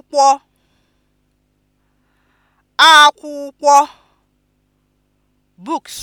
akwụkwọ akwụkwọ books